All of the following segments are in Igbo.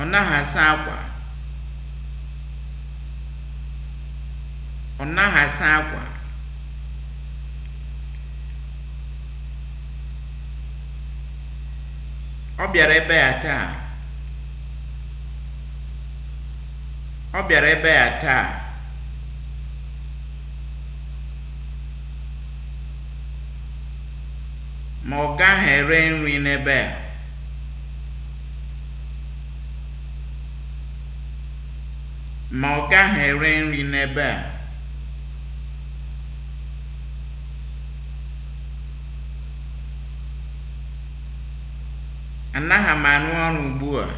ọ naghị asa akwa ọ naghị asa akwa ọ bịara ebe ya taa ọ bịara ebe ya taa ma ọ gaghị ere nri n'ebe a ma ọ gaghị ere nri n'ebe a anaghị m arụ ọrụ ugbu a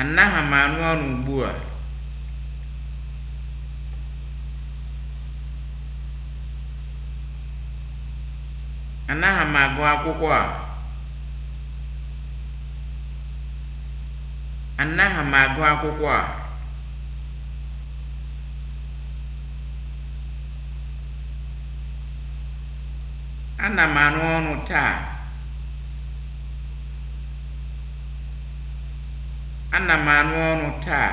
anaghị m arụ ọrụ ugbu a anaghị m agụ akwụkwọ a Anaghị m agụ akwụkwọ a. Ana m arụ ọrụ taa. Ana m arụ ọrụ taa.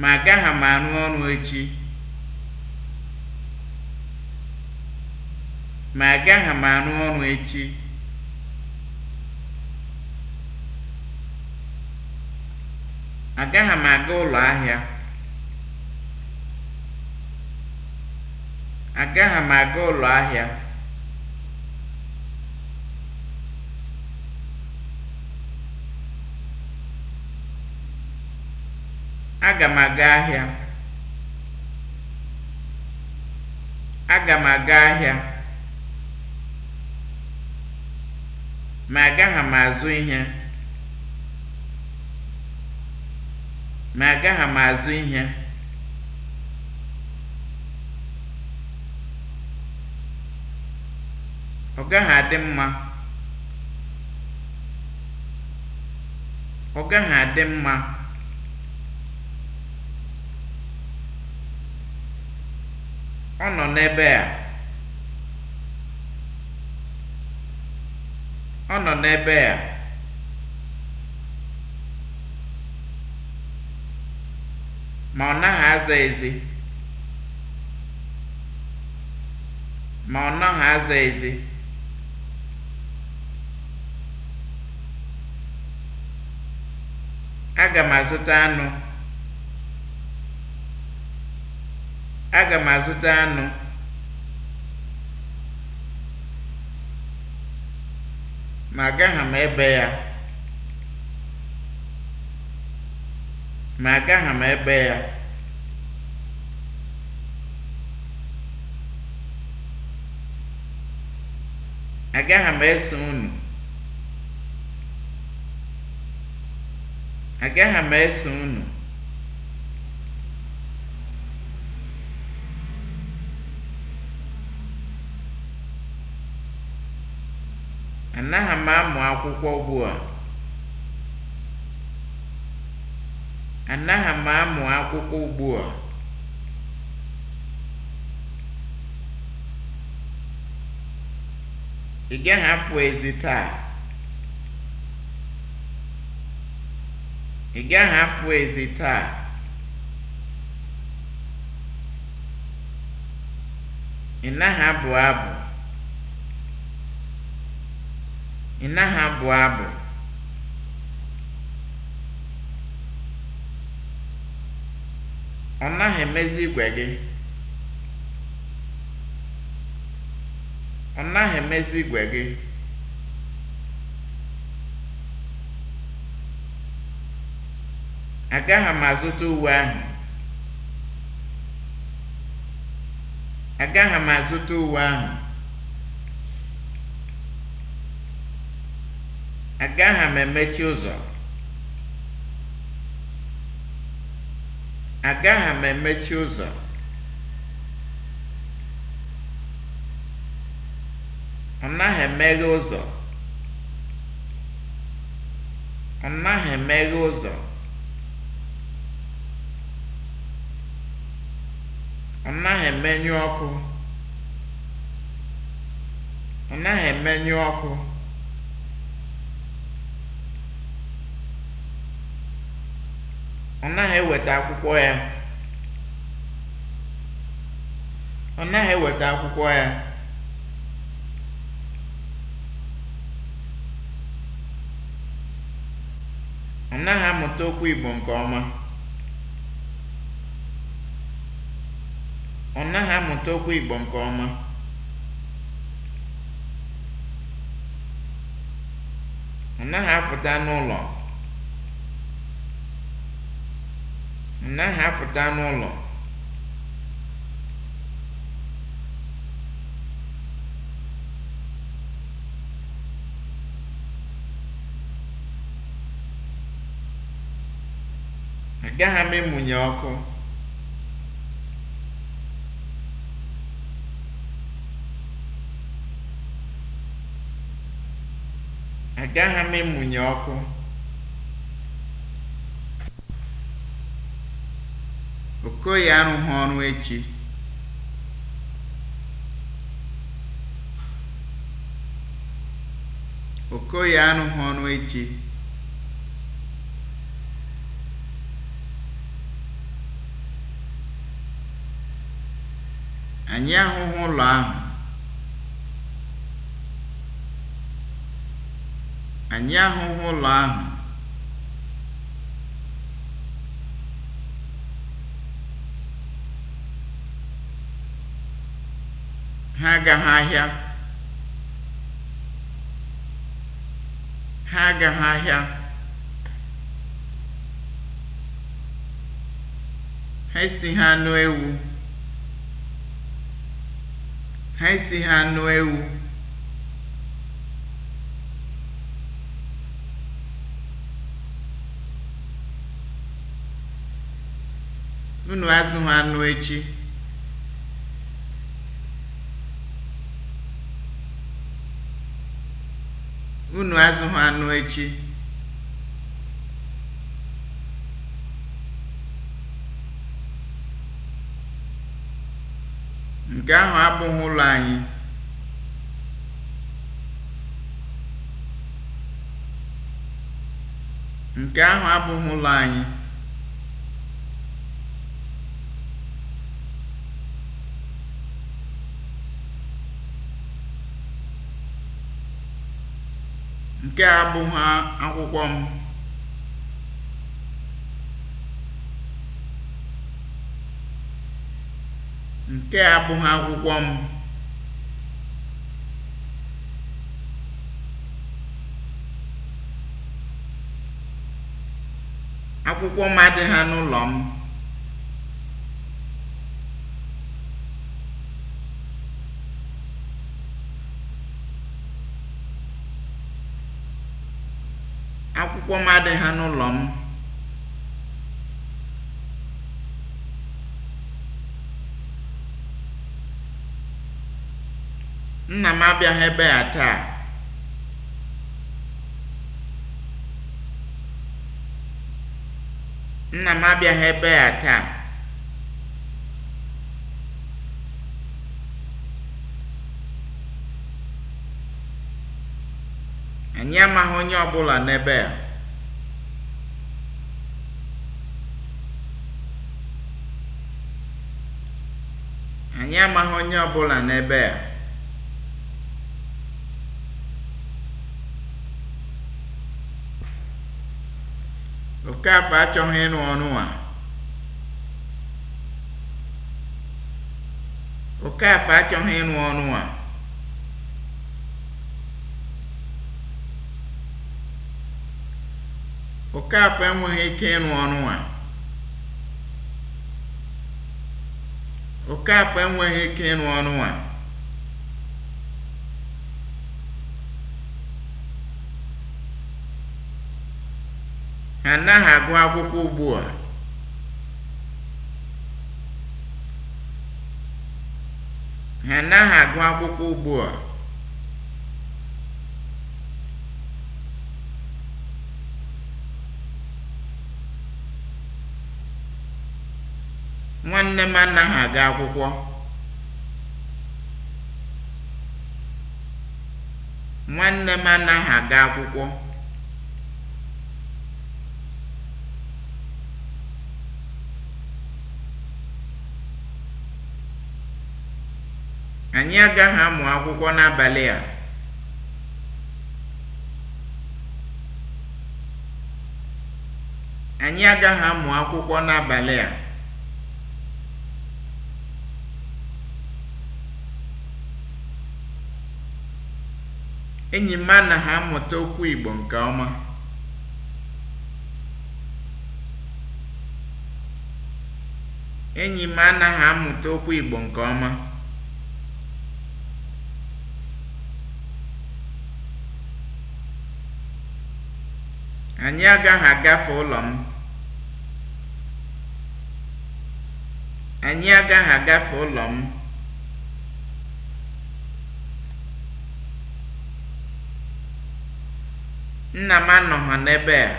Ma agaghị m arụ ọrụ agaghị m arụ ọrụ echi. agaghị m aga ụlọ ahịa agaghị m aga ụlọ ahịa aga m aga ahịa aga m aga ahịa ma agaghị m azụ ihe ma agaghị m azụ ihe ọ gaghị adị mma ọ nọ n'ebe a ọ nọ n'ebe a ma ọ naghị aza ezi ma ọ aza aga m azụta anụ aga m azụta anụ ma agaghị m ebe ya ma agaghị m ebe ya agaghị m eso unu agaghị m eso unu anaghị m amụ akwụkwọ ugbu a Anaghị m amụ akwụkwọ ugbu a. Ị gaghị apụ ezi taa. Ị gaghị apụ ezi taa. Ị naghị abụ abụ. Ị naghị abụ abụ. Ọ naghị emezi igwe gị. Ọ naghị emezi igwe gị. Agaghị m azụta uwe ahụ. Agaghị m azụta uwe ahụ. Agaghị m emechi ụzọ. Agaghị m emechi ụzọ. Ọ naghị emeghe ụzọ. Ọ naghị emeghe ụzọ. Ọ naghị emenyụ ọkụ. Ọ naghị emenyụ ọkụ. ọ naghị eweta akwụkwọ ya ọ naghị eweta akwụkwọ ya ọ naghị amụta okwu Igbo nke ọma ọ naghị amụta okwu Igbo nke ọma ọ naghị apụta n'ụlọ naghị apụta n'ụlọ agaghị m emunye ọkụ agaghị m emunye ọkụ Okoye arụghị ọrụ echi. Okoye echi. Anyị ahụhụ Anyị ahụghị ụlọ ahụ. ha agaghị ahịa ha agaghị ahịa ha ha anụ ewu ha ha anụ ewu unu ha anụ echi Unu azụghị anụ echi. Nke ahụ abụghị ụlọ anyị. Nke ahụ abụghị ụlọ anyị. Nke a abụghị akwụkwọ m. Nke abụghị akwụkwọ m. Akwụkwọ m adịghị n'ụlọ m. akwụkwọ m ha n'ụlọ m. nna m abịaghị ebe a taa nna m abịaghị ebe a taa anyị amaghị onye ọbụla n'ebe a Anyị amaghị onye ọbụla n'ebe a. Okaakpa achọghị ịrụ ọrụ a. Okaakpa achọghị ịnụ ọrụ a. Okaakpa enweghị ike ịnụ ọrụ a. Okaafọ enweghị ike ịrụ ọnụ a. Ha anaghị agụ akwụkwọ ugbu a. Ha anaghị agụ akwụkwọ ugbu a. Nwanne m anaghị aga akwụkwọ. Nwanne aga akwụkwọ. Anyị agaghị Anyị agaghị amụ akwụkwọ n'abalị a. Enyi m anaghị amụta okwu Igbo nke ọma. amụta okwu Igbo nke ọma. Anyị agaghị Anyị agaghị agafe ụlọ m. Nna m anọghị n'ebe a.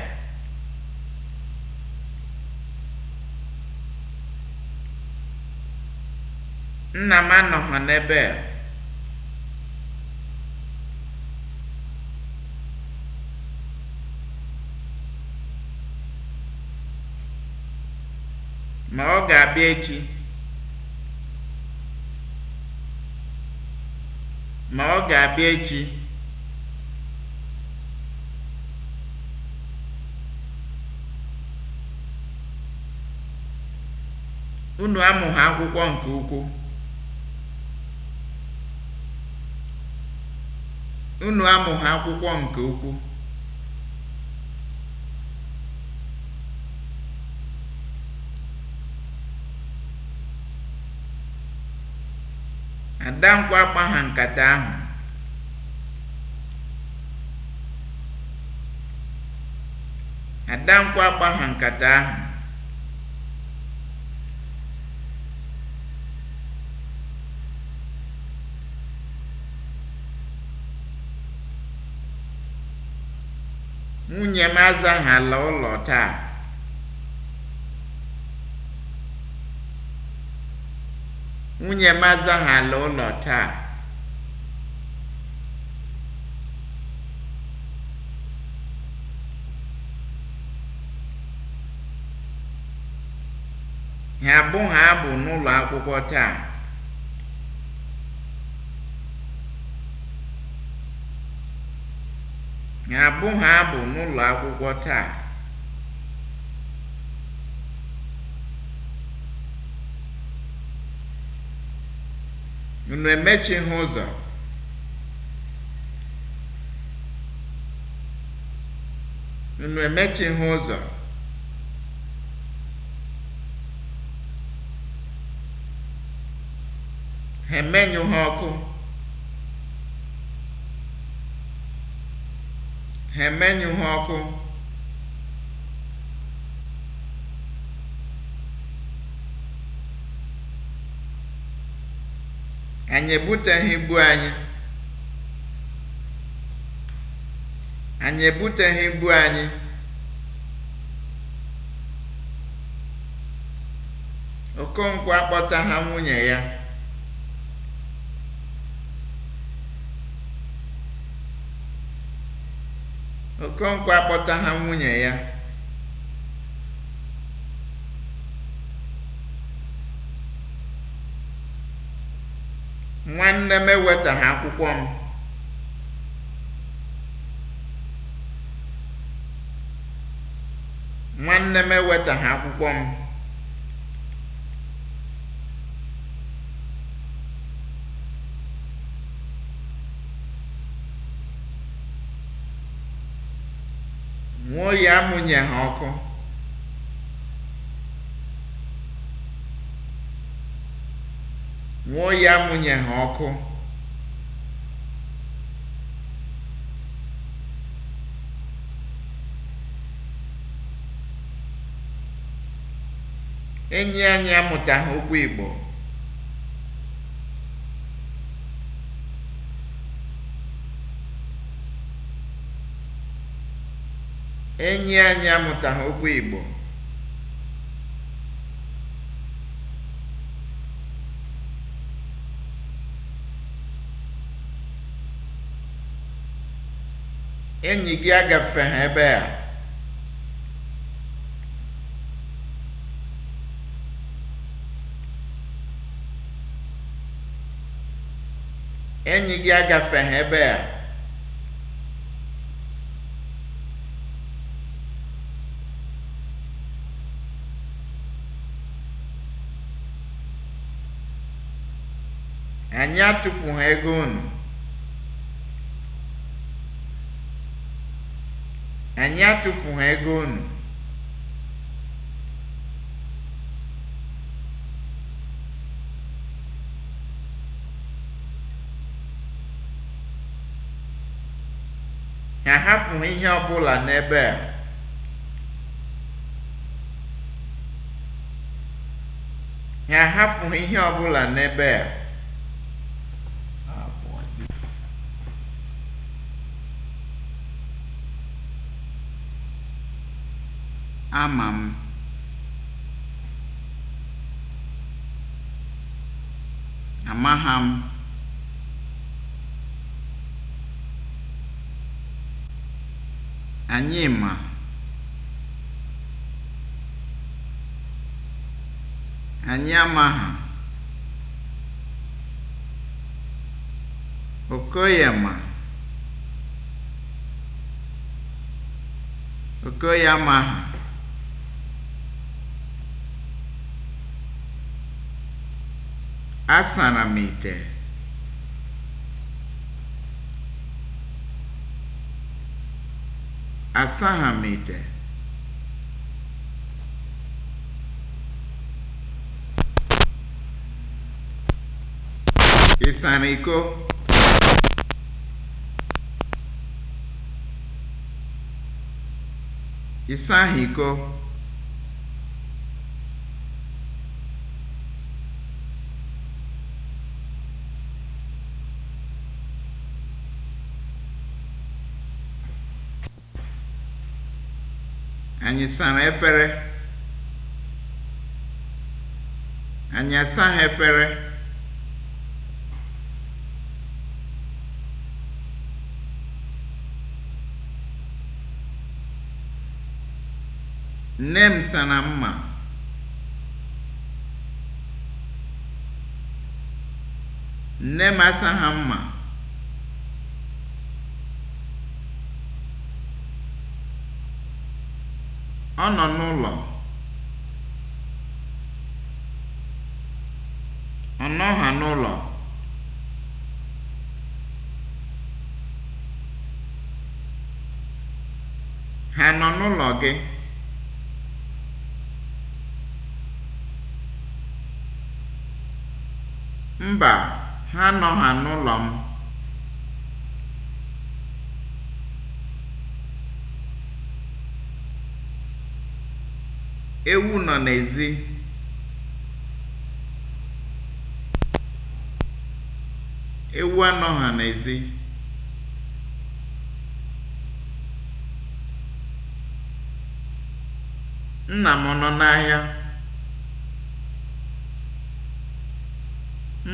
Nna m n'ebe a. Ma ọ ga-abịa echi. Ma ọ ga-abịa echi. unu amụghị akwụkwọ nke ukwuu unu amụghị akwụkwọ nke ukwuu adankwa akpa nkata ahụ Adankwụ akpa ha nkata ahụ Nwunye m azaghala ụlọ taa. Nwunye m azaghala ụlọ taa. Ha abụghị abụ n'ụlọ akwụkwọ taa. abụ ha abụ n'ụlọ akwụkwọ taa. Unu emechighị ụzọ. Unu emechighị ụzọ. Ha ha ọkụ. Ha emenyụ ha ọkụ. Anyị ebuteghị ibu anyị. Anyị ebuteghị ibu anyị. Okonkwo nwunye ya. Okonkwo ha nwunye ya. Nwanne m ewetaghị akwụkwọ m. Nwanne m ewetaghị akwụkwọ m. Mụọ ya ha ọkụ. Mụọ ya amụnye ha Enyi anyị amụtaghị okwu Igbo. Enyi anyị amụtaghị okwu Igbo. Enyi gị agafeghị ebe Enyi gị agafeghị ebe a. Anyị atụfughị ego unu. Anyị atụfughị ego unu. Ha hapụrụ ihe ọ bụla n'ebe a. Ha hapụrụ ihe ọ bụla n'ebe a. Ama m. Amaha m. Anyị ma. Anyị amaha. Okoye ma. Okoye amaha. Asara m asaha Asaghị m ite. iko? Ị iko? anyị sara efere anyị asaghị efere nne m sara mma nne m asaghị mma Ọ nọ n'ụlọ. Ọ ha n'ụlọ. Ha nọ n'ụlọ gị? Mba, ha nọ ha n'ụlọ m. Ewu nọ n'ezi. Ewu ha n'ezi. Nna m nọ n'ahịa?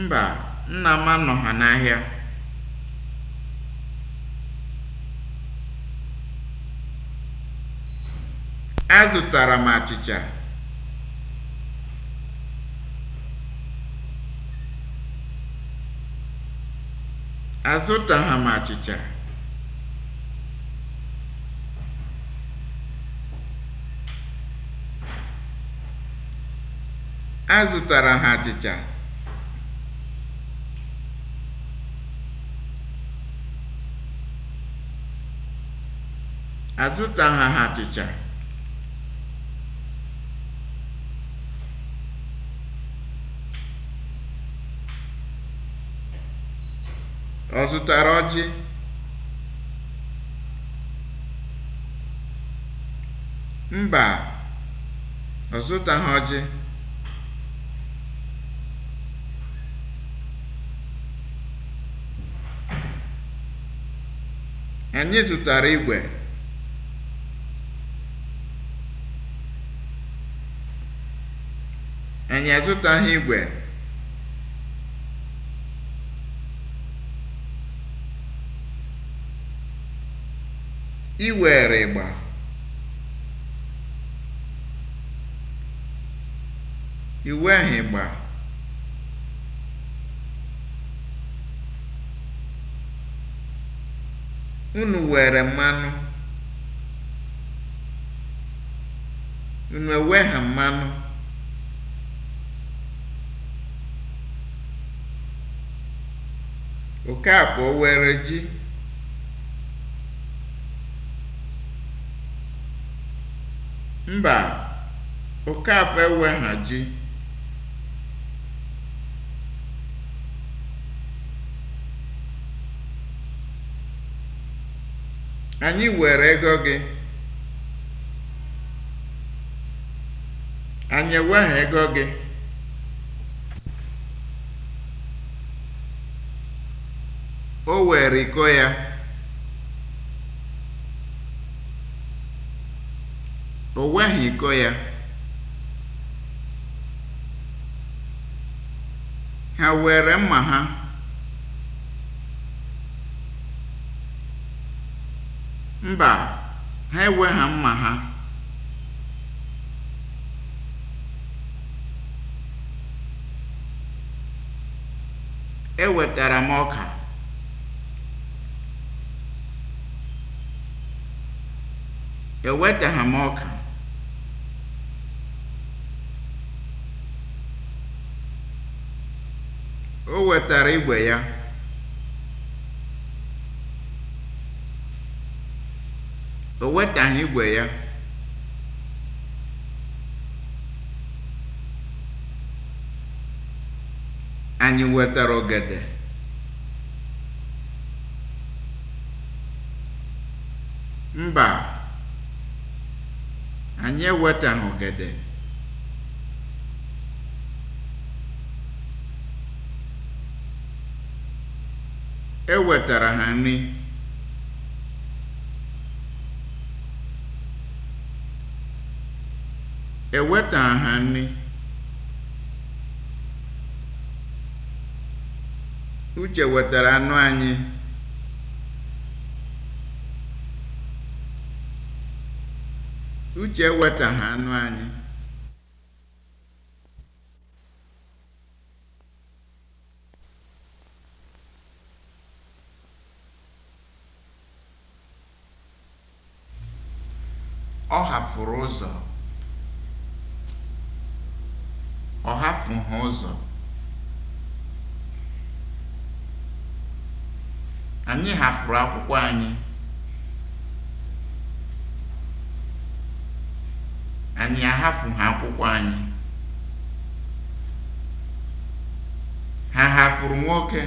Mba, nna m ha n'ahịa. Azụtara m achịcha. m achịcha. Azụtara ha achịcha. ha achịcha. Ọ zụtara ọjị? Mba, ọ zụtaghị ọjị. Anyị zụtara igwe. Anyị azụtaghị igwe. ịgba iwèrìgbà ịgba unu were mmanụ unu ewegha mmanụ Okafor were ji Mba, Okafor eweghaji ji. Anyị were ego gị. Anyị ewegha ego gị. O were iko ya. O weghị iko ya, ha were mma ha. Mba, ha ha mma ha. Ewetara m ọka. Ewetaghị m ọka. O wetara igwe ya. O wetaghị igwe ya. Anyị wetara ogede. Mba, anyị ewetaghị ogede. E wetara ha nri. E wetaghị ha nri. Uche wetara anụ anyị. Uche ewetaghị anụ anyị. ọ hapụrụ ụzọ ọ ha ụzọ anyị hapụrụ akwụkwọ anyị anyị ha akwụkwọ anyị ha hafụrụ nwoke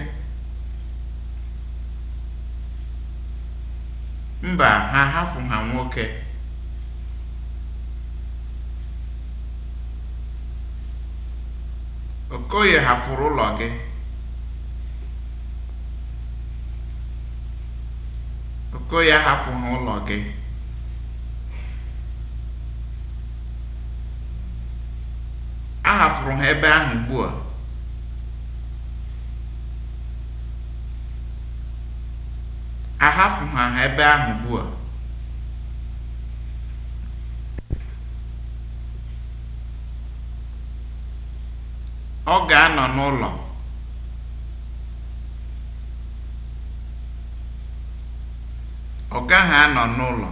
mba ha ha nwoke Okoye hafụrụ ụlọ gị. Okoye ụlọ gị. ha ebe ahụ ugbu a. anọ n'ụlọ ọ gaghị anọ n'ụlọ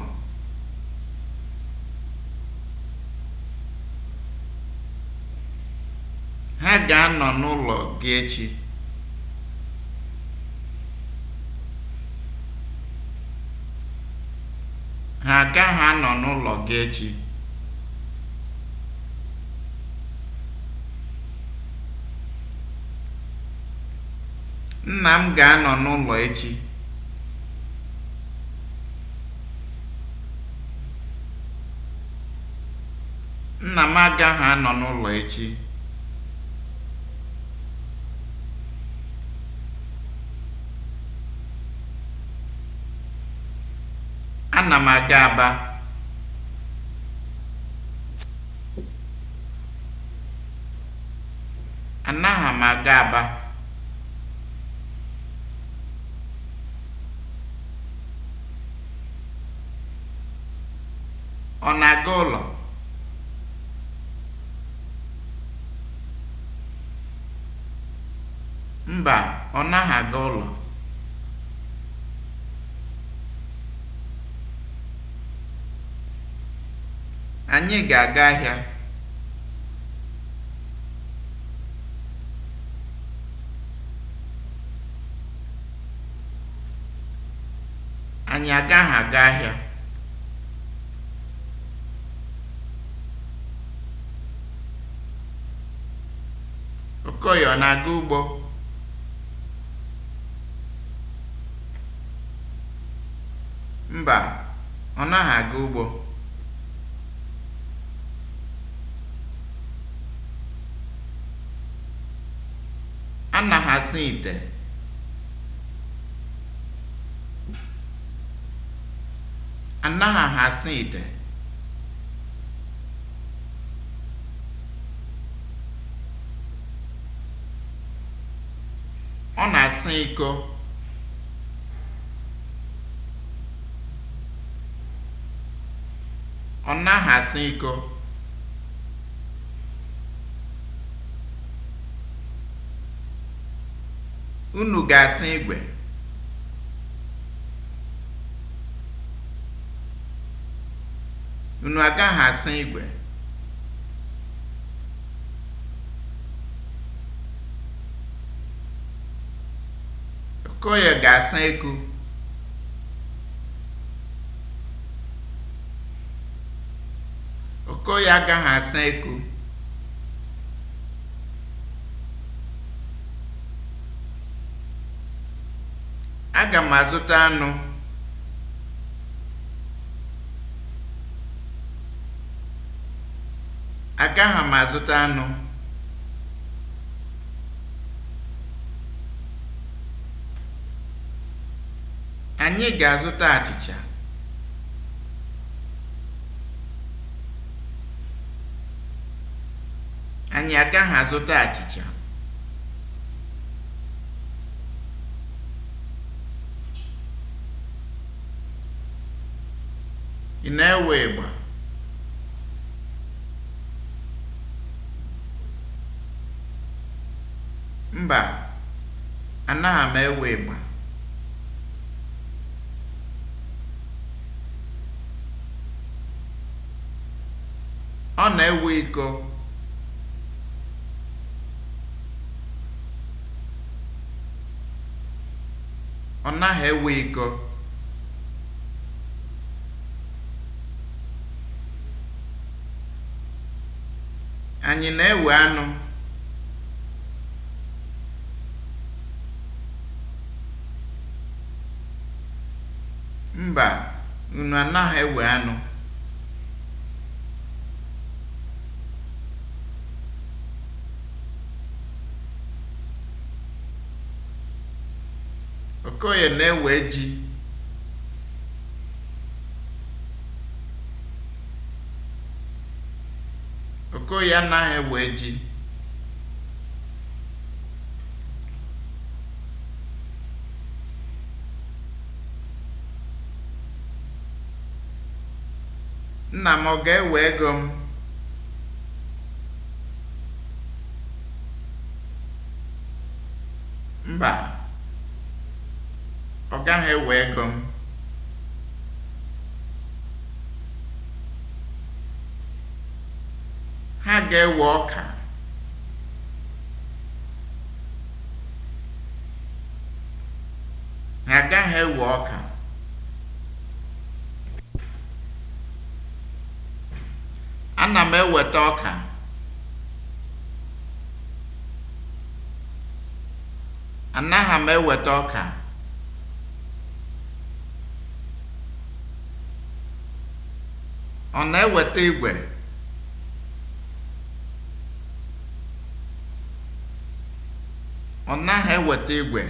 ha ga-anọ n'ụlọ gị echi ha agaghị anọ n'ụlọ gị echi Nna m ga-anọ n'ụlọ echi. Nna m agaghị anọ n'ụlọ echi. Ana m aga Aba. Anaghị m aga Aba. Ọ na-aga ụlọ? Mba, ọ naghị aga ụlọ. Anyị ga-aga ahịa. Anyị agaghị aga ahịa. Okoye ọ na-aga ugbo? Mba, ọ naghị aga ugbo. ite. Ọ na-asa iko. Ọ naghị asa iko. Unu ga-asa igwe. Unu agaghị asa igwe. Koje ga-asa ego. Okoye agaghị asa ego. Aga m azụta anụ. Agaghị m azụta anụ. Anyị ga-azụta achịcha. Anyị agaghị azụta achịcha. Ị na-ewe ịgba? Mba, anaghị m ewe ịgba. ọ na-ewe iko ọ naghị ewe iko anyị na-ewe anụ mba unu anaghị ewe anụ Okoye na-ewe ji. Okoye anaghị ewe ji. Nna m ọ ga-ewe ego m? Mba. Ọ gaghị ewe ego m. Ha ga-ewe ọka. Ha agaghị ewe ọka. Ana m eweta ọka. Anaghị m eweta ọka. Ọ na-eweta igwe? Ọ naghị eweta igwe.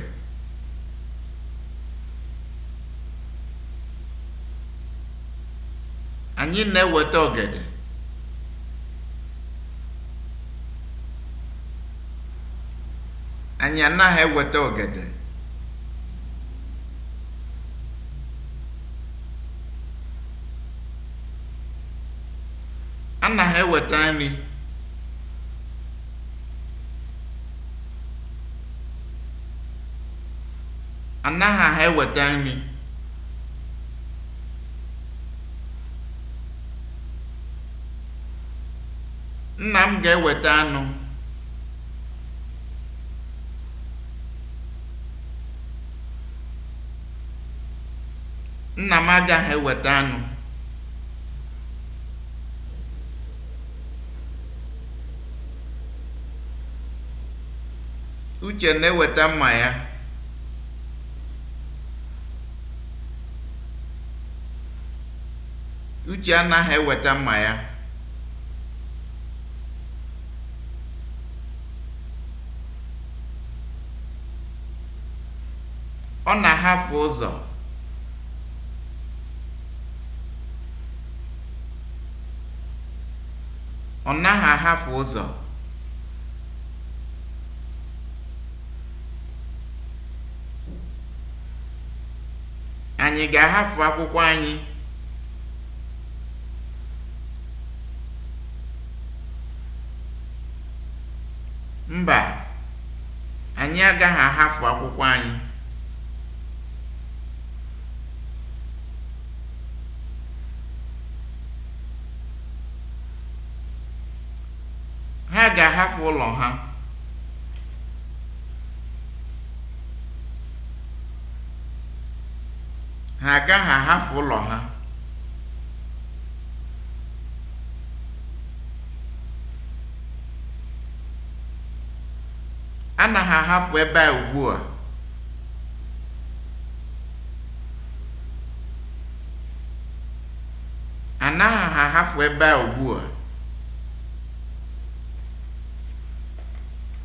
Anyị na-eweta ogede. Anyị anaghị eweta ogede. eweta nri anaghị aha eweta nri nna m ga-eweta anụ nna m agaghị eweta anụ Uche na-eweta mma ya. Uche anaghị eweta mma ya. Ọ na-ahafụ ụzọ. Ọ naghị ahafụ ụzọ. anyị ga-ahafụ akwụkwọ anyị mba anyị agaghị ahafụ akwụkwọ anyị ha ga-ahafụ ụlọ ha ha agaghị ahapụ ụlọ ha anaghị ahapụ ebe a ugbu a ahapụ ebe a ugbu